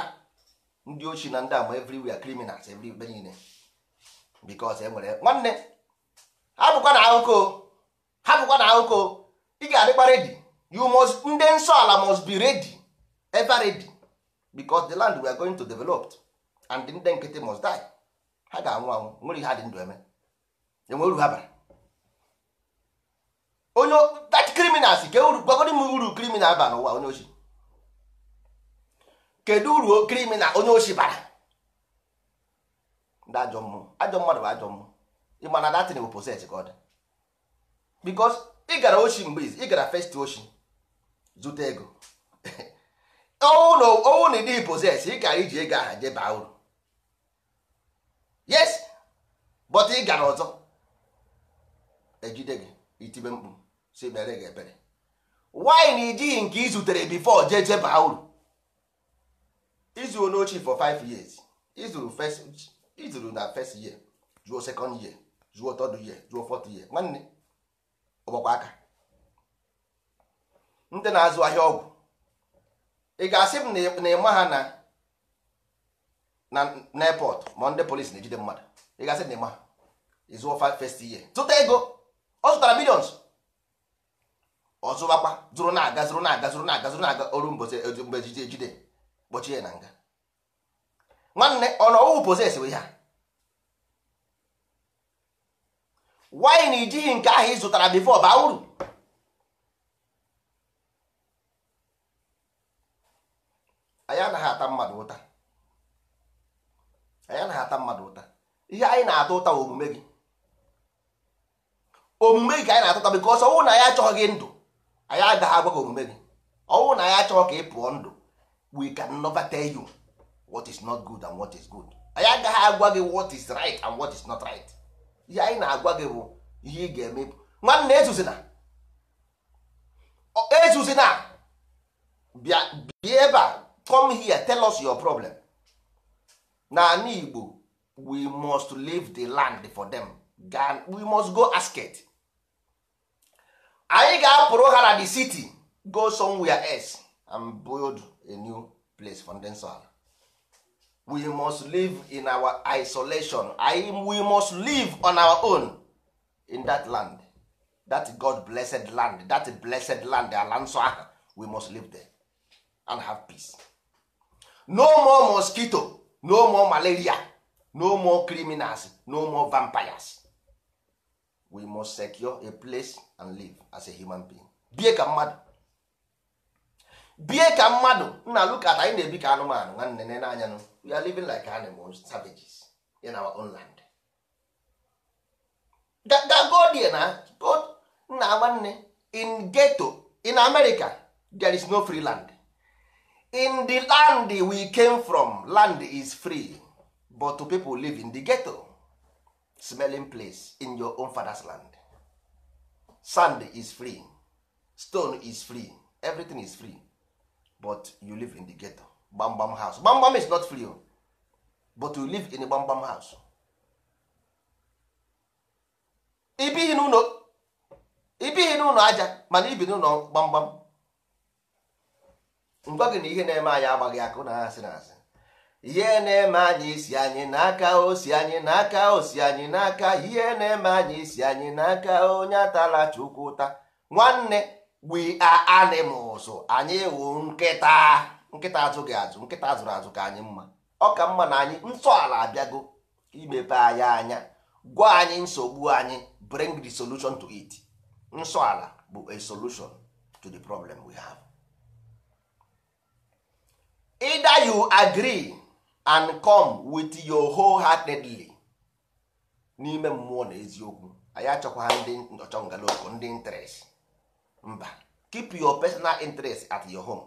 ndị ochi na ndị agba everywhere criminals everywhere niile because enwere nwanne hapụkwa na akụkọ hapụkwa na akụkọ ị ga-adịkwa redi you must ndị nsọ ala must be ready ever ready because the land we are going to develop and ndị nkịtị must die ha ga-anwụ anwụ nwere ihe ndụ eme enwe uru ha bara onye that criminal si ka uru gwagoro m uru criminal ba n'ụwa onye ochi kedu uru criminal onye ochi bara ndị ajọ mmụọ ajọ mmadụ bụ ajọ mmụọ ịma na datin bụ poset ka ọ dị bikos ị gara ochi mgbe ị gara first ochi zute ego ọnwụ na ịdị poses ị gara iji ego aha jeba uru yes but ị gara ọzọ ejide gị itibe mkpu si mere gị ebere wine ijighị nke ị zutere bifo jee jeba uru izuru n'ochi for 5 years izuru izuru na first year zuo second year zuo third year zuo fourth year nwanne ọgbakwa aka ndị na-azụ ahịa ọgwụ ị ga-asị m na ịma ha na na n'airport ma ndị polisi na-ejide mmadụ ị ga-asị na ịma ha ịzụọ first year zụta ego ọ zụtara millions ọ zụrụ na-aga zụrụ na-aga zụrụ na-aga zụrụ na-aga oru mgbe ejide ejide kpọchie na nga nwanne ọ nọ ọwụ poses we ha na ijighị nke ahụ ị zụtara bifo baa uru anyị anaghị ata mmadụ ụta anyị anaghị ata ihe anyị na-ata ụta omume gị omume gị ka anyị na-atụta bikos ọnwụ na anyị achọghị gị ndụ anyị agaghị agwa gị omume gị ọnwụ na anyị achọghị ka ị pụọ ndụ we can never tell you what is not good and what is good anyị agaghị agwa gị what is right and what is not right ihe anyị na-agwa gị bụ ihe ị ga-eme nwanne ezuzina ezuzina bịa bịa ebe a come here tell us your problem n'ala Igbo we must leave the land for them we must go ask it. anyị ga-apụrụ ha na the city go somewhere else and build a new place for ndị ala we must live in our isolation anyị we must live on our own in that land that God blessed land that blessed land ala nsọ ahụ we must live there and have peace. no more mosquito no more malaria no more criminals no more vampires we must secure a place and live as a human being bie ka mmadụ bie ka mmadụ na look at anyị na-ebi ka anụmanụ nwanne nene n'anya nụ we are living like animals savages in our own land gagodie na nna nwanne in ghetto in America there is no free land in the land we came from land is free but to people live in the ghetto smelling place in your own father's land sand is free stone is free everything is free but you live in the ghetto gbamgbam house gbamgbam is not free oh. but you live in a gbamgbam house ibighị n'ụlọ aja mana ibi n'ụlọ gbamgbam ngwa gị na ihe na-eme anyị agbaghị akụ na-asị na asị ihe na-eme anyị isi anyị n'aka osi anyị n'aka osi anyị n'aka ihe na-eme anyị isi anyị n'aka onye atala chukwu ụta nwanne we are anyị wụ nkịta nkịta azụghị azụ nkịta azụrụ azụ ka anyị mma ọ ka mma na anyị ala abịago imepe anyị anya gwa anyị nsogbu anyị bring the solution to it nsọala bụ a solution to the problem we have. either you agree and come with your whole heartedly n'ime mmụọ na eziokwu anyị achọkwa ndị ọchọngaloko ndị interest mba keep your personal interest at your home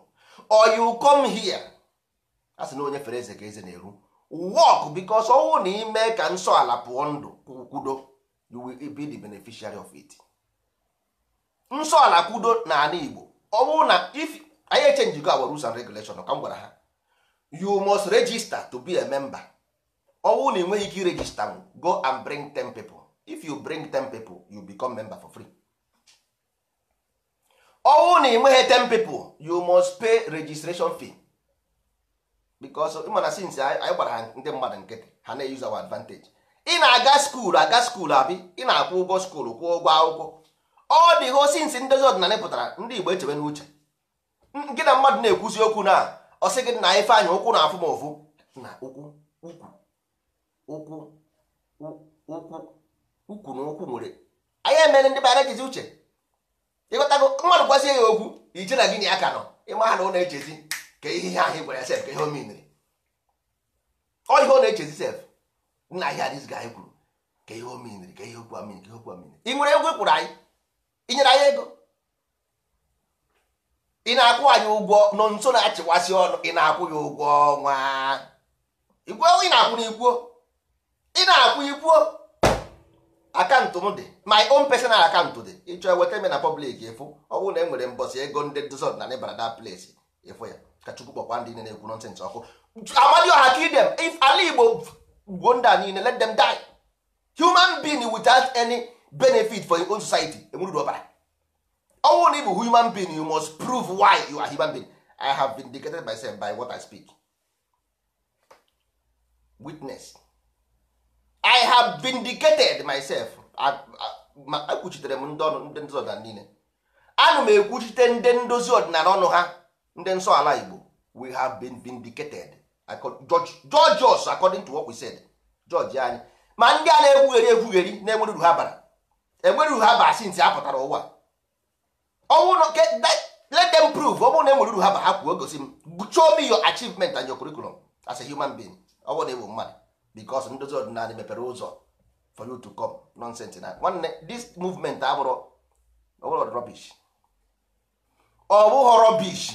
or you come here a sị na onye fere eze ka eze na-eru work because ọnwụ na ime ka nsọ ala pụọ ndụ kwudo you will be the beneficiary of it nsọ ala kwudo na Igbo ọnwụ na if anyị echenji go our rules and regulation ka m gwara ha you must register to be a member ọnwụ na enweghị ike register go and bring ten people if you bring ten people you become member for free ọnwụ na enweghị ten people you must pay registration fee because ịma na since anyị gbara ha ndị mmadụ nkịtị ha na-use our advantage ị na-aga skuul aga skuul abi ị na-akwụ ụgwọ skuul kwụọ ụgwọ akwụkwọ ọ dị ho since ndị ọdịnala pụtara ndị Igbo echebe n'uche gị na mmadụ na-ekwuzi okwu na ọ sị gị na ife anyị ụkwụ na-afụ m ofu na ụkwụ ụkwụ ụkwụ ụkwụ ụkwụ na ụkwụ nwere anyị emere ndị bara ejizi uche ịghọtago mmadụ gwazie ya okwu ije na gị na ya ka nọ ịma ha na ọ na-echezi ka ihe ahụ gwara sef ka ihe o ọ ihe ọ na-echezi sef nna ihe adịzi ga anyị kwuru ka ihe o miniri ka ihe okwu amini ka ihe okwu amini ị nwere egwu ị kwụrụ anyị inyere anyị ego ị na-akwụ anyị ụgwọ nọ nso na-achịkwasị ọnụ ị na-akwụ ya ụgwọ ọnwa igwuo ị na-akwụ n'igwuo ị na-akwụ igwuo akaụntụ m dị my own personal akaụntụ dị ịchọ eweta me na pọblik efu ọ bụrụ na e nwere mbọsị ego ndị dzod na nịbara that place efu ya ka chukwu kpọkwa ndị niile na-ekwu nọnsens ọkụ amadi ọha ka idem if ala igbo gbuo ndị a niile let them die human being without any benefit for your own society enweruru ọbara ọnwụ na ị bụ human being you must prove why you are human being i have vindicated myself by what i speak witness i have vindicated myself ekwuchitere m ndị ndị ọdịnala niile ana m ekwuchite ndị ndozi ọdịnala ọnụ ha ndị nsọ ala igbo we have been vindicated george George. us according to what we said George anyị ma ndị a na-ekwugheri ekwugheri na-enwere ha bara enwere ha ụwa ọnwụ na let them prove ọ bụrụ na enwere uru ha ba ha kwuo gosi m show me your achievement and your curriculum as a human being ọ bụrụ na ewu mmadụ because ndozi ọdịnala mepere ụzọ for you to come nonsense na nwanne this movement abụrụ ọbụrụ rubbish ọ bụghị rubbish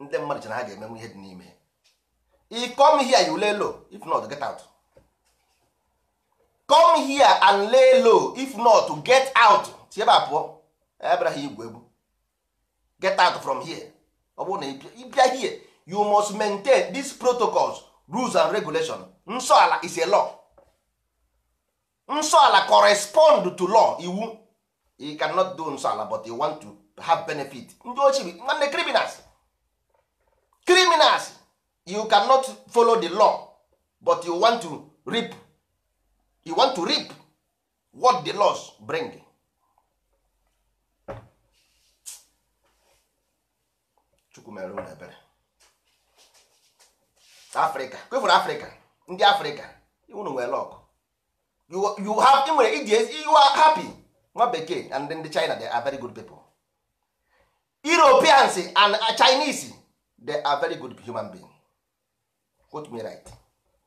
ndị mmadụ chere ha ga-emenwe ihe dị n'ime i come here you lay low if not get out come here and lay low if not get out si ebe pụọ abịara ha igwe get out from here ọ bụrụ na ịbịa you must maintain these protocols rules and regulations nsọ ala is a law nsọ ala correspond to law iwu you cannot do nsọ ala but you want to have benefit ndị ochie nwanne criminals criminals you cannot follow the law but you want to reap you want to reap what the laws bring chukwu mere ụlọ ebere afrịka kwefụrụ afrịka ndị afrịka unu nwere lọkụ you have nwere you are happy nwa bekee and ndị china they are very good people europeans and chinese they are very good human being quote me right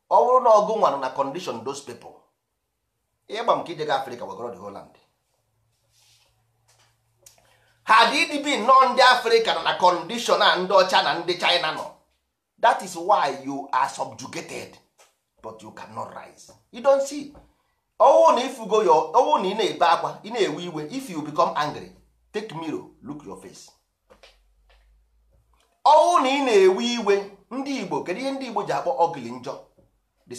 ọ bụrụ na ọgụ nwanụ na condition those people ịgba m ka ijega afrịka wegoro the whole land ha dị nọ ndị afrịka na kọndishọn na ndị ọcha na ndị china nọ that is why you are subjugated but you cannot rise you don't see owu oh, na ifugo yo owu oh, na ị na-ebe akwa ị na-ewe iwe if you become angry take mirror look your face owu na ị na-ewe iwe ndị igbo kedu ihe ndị igbo ji akpọ ogili njọ the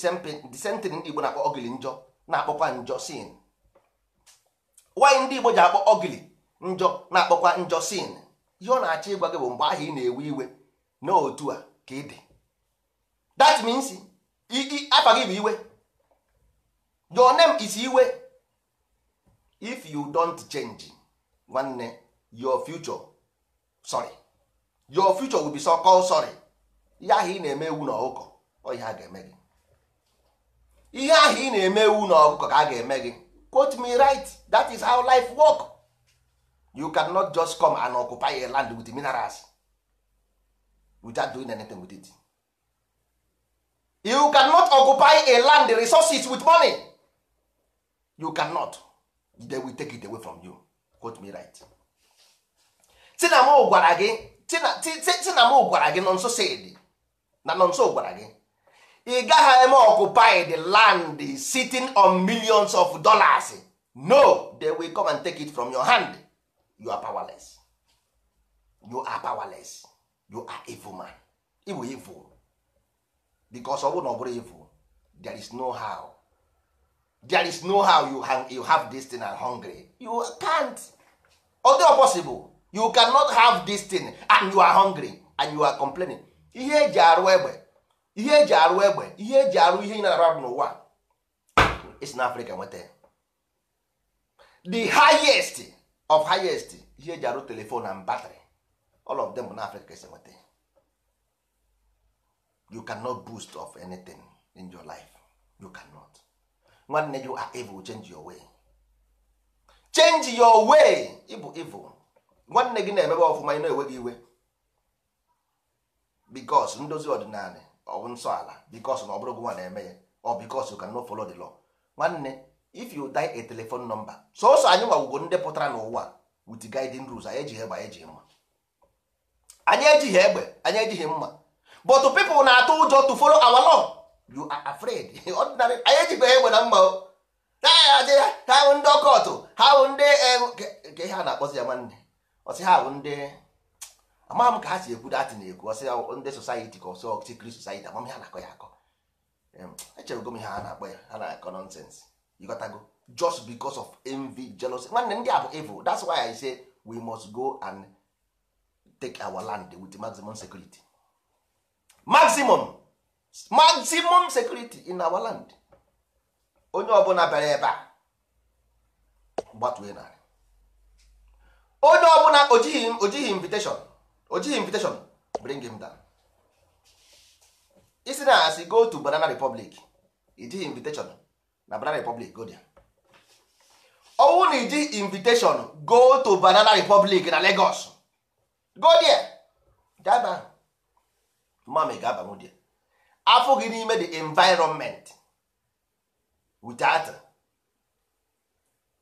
same thing ndị igbo na-akpọ ogili njọ na-akpọkwa njọ sin why ndị igbo ji akpọ ogili njọ na-akpọkwa njọ sin ihe ọ na-achọ ịgwa gị bụ mgbe ahụ ị na-ewe iwe na otu a ka ị dị that means afa gị bụ iwe your name is iwe if you don't change nwanne your future sorry your future will be so called sorry ihe ahụ ị na-eme ewu na ọ ihe a ga-eme gị ihe ahụ ị na-eme ewu na ka a ga-eme gị quote me right that is how life work you cannot just come and occupy a land with minerals without doing anything with it you cannot occupy a land resources with money you cannot they will take it away from you quote me right tinamo gwara gị tinamo gwara gị na nọ nso gwara gị ị gaghị eme occupy the land sitting on millions of dollars no they will come and take it from your hand you are powerless you are powerless you are evil man ịbụ evil because ọ bụrụ na ọ bụrụ evil there is no how there is no how you, you have this thing and hungry you can't although possible you cannot have this thing and you are hungry and you are complaining ihe eji arụ egbe ihe eji arụ egbe ihe eji arụ ihe ị na-arụ n'ụwa is in Africa nweta the highest of highest ihe eji arụ telefon and battery all of them na Africa is nweta you cannot boost of anything in your life you cannot nwanne you are evil change your way change your way ịbụ evil nwanne gị na-emebe ọfụma ị na-enweghị iwe because ndozi ọdịnala ọ bụ nsọ ala bikos na ọ bụrụ gị nwa na-eme ya or bikos you cannot follow the law nwanne if you die a telephone number sọsọ anyị nwawugo ndị pụtara n'ụwa with guiding rules anyị ejighị egbe anyị ejighị mma anyị ejighị egbe anyị ejighị mma but people na-atụ ụjọ to follow our law you are afraid ordinary anyị ejibeghị egbe na mma o ha wụ ndị ọkọtụ ha wụ ndị nke e, ha na-akpọzi ya nwanne ọsị ha wụ ndị amaghị m ka ha si ekwu datị na-ekwu ọsị ndị society ka ọsọ ọchịchịkiri society amam ha na-akọ ya akọ echere gom ihe ha na-akpọ ya ha na-akọ nọnsensị you to go just because of envy jealousy nwanne ndị a bụ evil that's why i say we must go and take our land with maximum security maximum maximum security in our land onye ọbụla bịara ebe a gbatue narị onye ọbụla ojighị ojighị invitation ojighị invitation bring him down isi na asị go to banana republic ijighị invitation na banana republic go there ọwụwa na iji invitation go to banana republic na lagos go there gaba mami ga-abanwu there afọ gị n'ime the environment without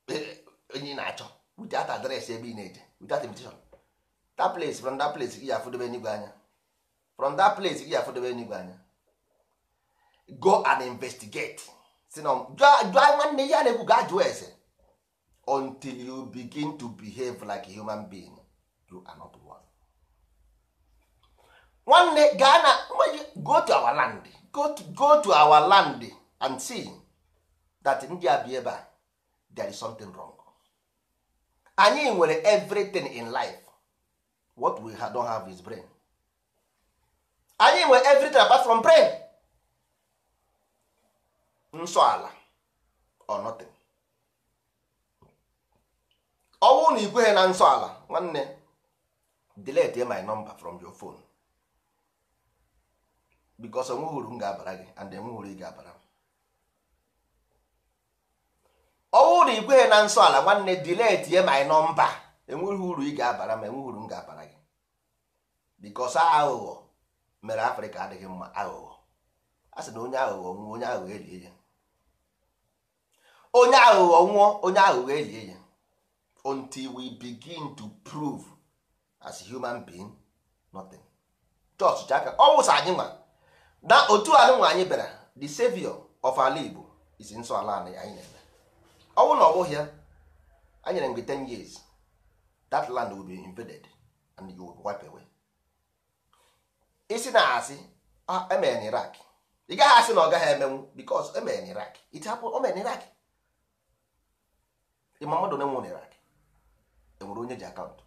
eh, onye na-achọ without address ebe ị na-eje without invitation that place from that place gị afụdobe n'igwe anya from that place gị afụdobe n'igwe anya go and investigate si na jụọ nwanne ya na-ekwu ga-ajụ ese until you begin to behave like a human being you are not one. nwanne gaa na go to our land go to, go to our land and see that ndị a bi ebe a there is something wrong. anyị nwere everything in life what we don't have is brain anyị nwere everything apart from brain nsọ ala or nothing ọnwụ na ikweghị na nsọ ala nwanne delete my number from your phone because onwe hụrụ m ga-abara gị and enwe hụrụ ị ga-abara m ọnwụ na ikweghị na nsọ ala nwanne delete my number enweghị uru ị ga-abara m enweghị uru m ga-abara gị because aghụghọ mere Afrịka adịghị mma aghụghọ a sị na onye aghụghọ nwụọ onye aghụghọ elie ya onye aghụghọ nwụọ onye aghụghọ elie ya until we begin to prove as a human being nothing chọọchịcha aka ọ wụsa anyị nwa na otu anụ nwa anyị bịara the savior of ala Igbo is nsọ ala anyị anyị na-eme ọnwụ na ya anyị nyere mgbe 10 years that land will be invaded and you will wipe away isi na asị ah, emere na Iraq ị gaghị asị na ọ gaghị emenwu because emere na Iraq it happened o mere na Iraq ịma mmadụ onye e nwere Iraq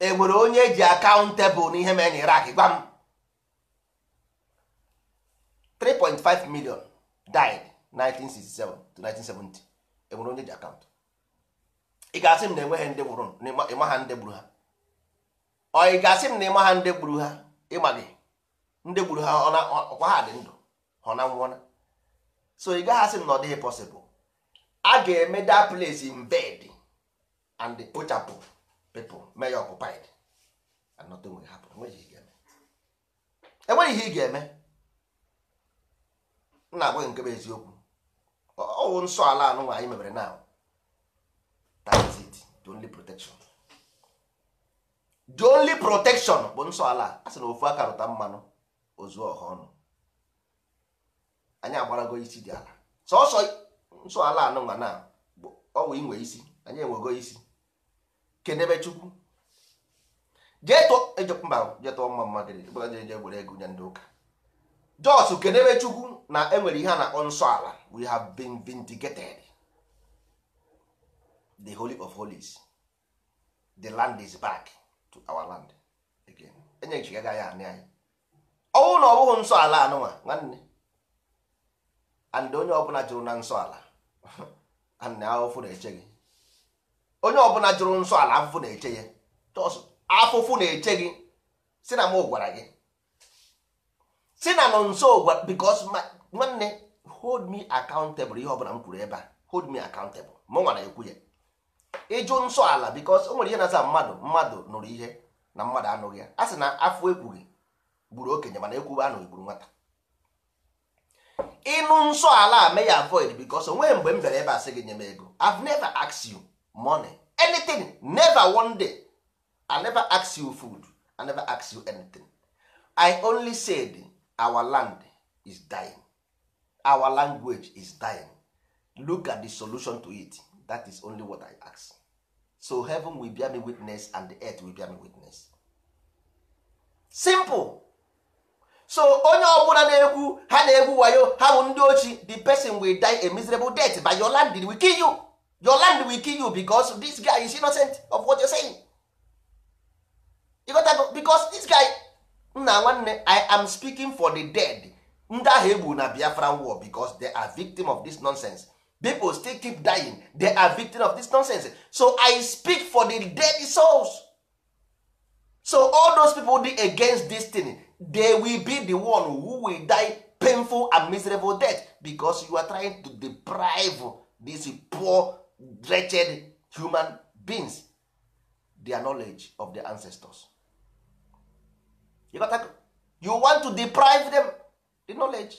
enwere onye ji akaụntụ enwere onye ji akaụntụ tebụl na ihe mere e na Iraq gwa m 3.5 million died 1967 to 1970 enwere onye ji akaụntụ ị ga-asị m na enweghị ndị gburu ịma ha ndị gburu ha ọ ị ga-asị m na ịma ha ndị gburu ha ịma gị ndị gburu ha ọkwa ha dị ndụ ha na nwụọ so ị gaghị asị m na ọ dịghị pọsịbụl a ga-eme that place in bed and the pochapụ people may occupied and nothing will happen enweghị ihe ị ga-eme nna agwaghị nke bụ eziokwu ọwụ nsọ ala anụnwa nwaanyị mebere now that is it the only protection the only protection bụ nsọ ala a sị na ofu aka rụta mmanụ ozu ọha ọnụ anyị agbarago isi dị ala sọsọ nsọala anụnwa na ọwụ inwe isi anyị enwego isi kedebe chukwu jee tụọ e mba jee tụọ mma mma gịrị bụla ego nye ndị ụka jos kedebe chukwu na enwere ihe a na-akpọ nsọala we have been vindicated the holy of holies the land is back to our land again enyechigaga ya anị anyị ọwụ na ọ bụghị nsọala anụnwa nwanne and onye ọbụla jụrụ na nsọ ala and afụfụ na-eche gị onye ọbụla jụrụ nsọ ala afụfụ na-eche ya afụfụ na-eche gị si na m gwara gị si na nọ nso gwara because nwanne hold me accountable ihe ọbụla m kwuru ebe a hold me accountable mụ nwa na-ekwu ya ịjụ nsọ ala because o nwere ihe na-aza mmadụ mmadụ nụrụ ihe na mmadụ anụghị ya a sị na afọ ekwughị gburu okenye mana ekwughị anụghị gburu nwata ịnụ nsọ ala may avoid because onweghị mgbe m bịara ebe a sị gị nye m ego I've never asked you money anything never one day I never asked you food I never asked you anything I only said our land is dying our language is dying look at the solution to it that is only what I ask so heaven will bear me witness and the earth will bear me witness simple so onye ọbụla na-ekwu ha na-egwu wayo ha bụ ndị ochi the person will die a miserable death but your land will kill you your land will kill you because this guy is innocent of what you're saying you got that? because this guy nna nwanne i am speaking for the dead ndị ahụ egbu na biafra war because they are victim of this nonsense people still keep dying they are victim of this nonsense so i speak for the dead souls so all those people dey against dis they will be the one who will die painful and miserable death because you are trying to deprive these poor wretched human beings their knowledge of the ancestors you, got you want to deprive them the knowledge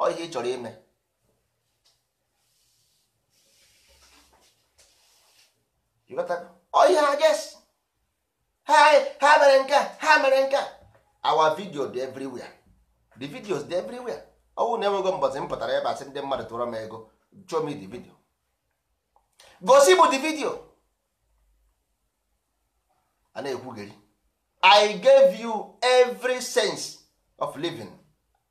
ọ ihe ị chọrọ ime ọ ihe ha ges ha mere nke ha mere nke our video dị everywhere the videos dị everywhere ọnwụ na enwego mbọsị m pụtara ebe asị ndị mmadụ tụrụ m ego show me the video gosi m the video a na-ekwugheri i gave you every sense of living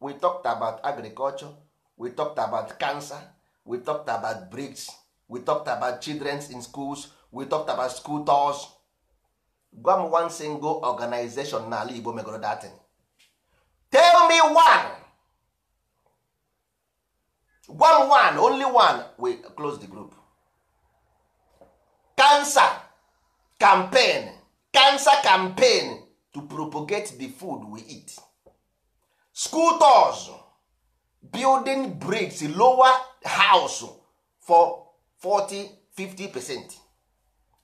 we talked about agriculture we talked about cancer we talked about bricks we talked about childrens in schools we talked about school tours gwa m one single organization n'ala Igbo megoro datin tell me one gwa m one only one we close the group cancer campaign cancer campaign to propagate the food we eat school tours building bricks lower house for 40 50 percent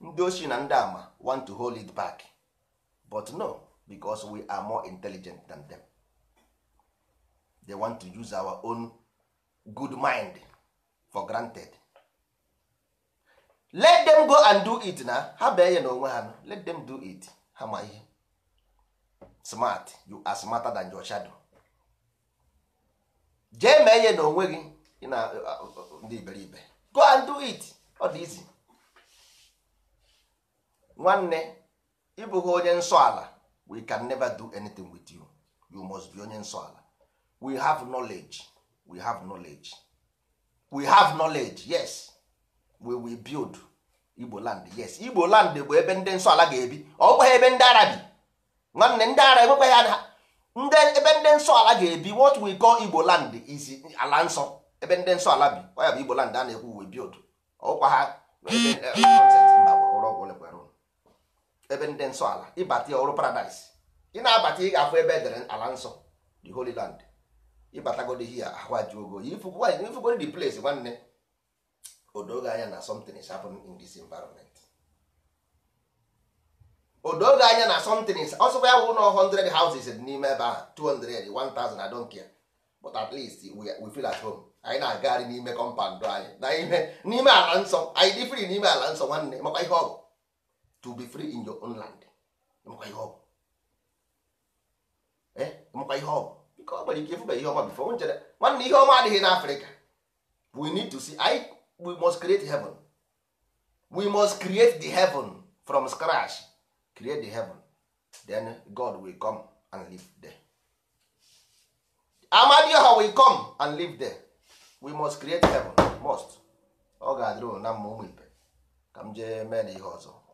ndị ochie na ndị ama want to hold it back but no because we are more intelligent than them they want to use our own good mind for granted let them go and do it na ha bee enye na onwe ha let them do it ha ma ihe smart you are smarter than your shadow jee mee ya na onwe gị na ndị iberibe go and do it ọ dị easy nwanne ịbụghị onye nsọ ala we can never do anything with you you must be onye nsọ ala we have knowledge we have knowledge we have knowledge yes we will build igbo land yes igbo land bụ ebe ndị nsọ ala ga-ebi ọ bụghị ebe ndị ara bi nwanne ndị ara enwekwaghị ha ndị ebe ndị nsọ ala ga-ebi what we call igbo land is ala nsọ ebe ndị nsọ ala bi ọ ya bụ igbo land a na-ekwu we build ọkwa ha ebe ndị nsọ ala ịbata ọrụ paradaịs ị na-abata ị ga-afụ ebe edere ala nsọ the holy land ịbatagodi ihe ahwajuogo ifugodi the place nwanne odoge anya na something is happening in this environment odoge anya na something is ọsọkwa ya bụ ụlọ 100 houses n'ime ebe ahụ 200 1000 I don't care but at least we, feel at home anyị na-agagharị n'ime kọmpandụ anyị na n'ime ala nsọ anyị dị free n'ime ala nsọ nwanne makwa ihe ọgụ to be free in your own land ihe ọ bụ makwa ihe ọ bụ ike ịfụba ihe ọma bifo nchere nwanne ihe ọma adịghị n'afrịka we need to see I, we must create heaven we must create the heaven from scratch create the heaven then god will come and live there amadioha will come and live there we must create heaven must ọ ga-adịrị na mma ụmụ ibe ka m jee mee na ihe ọzọ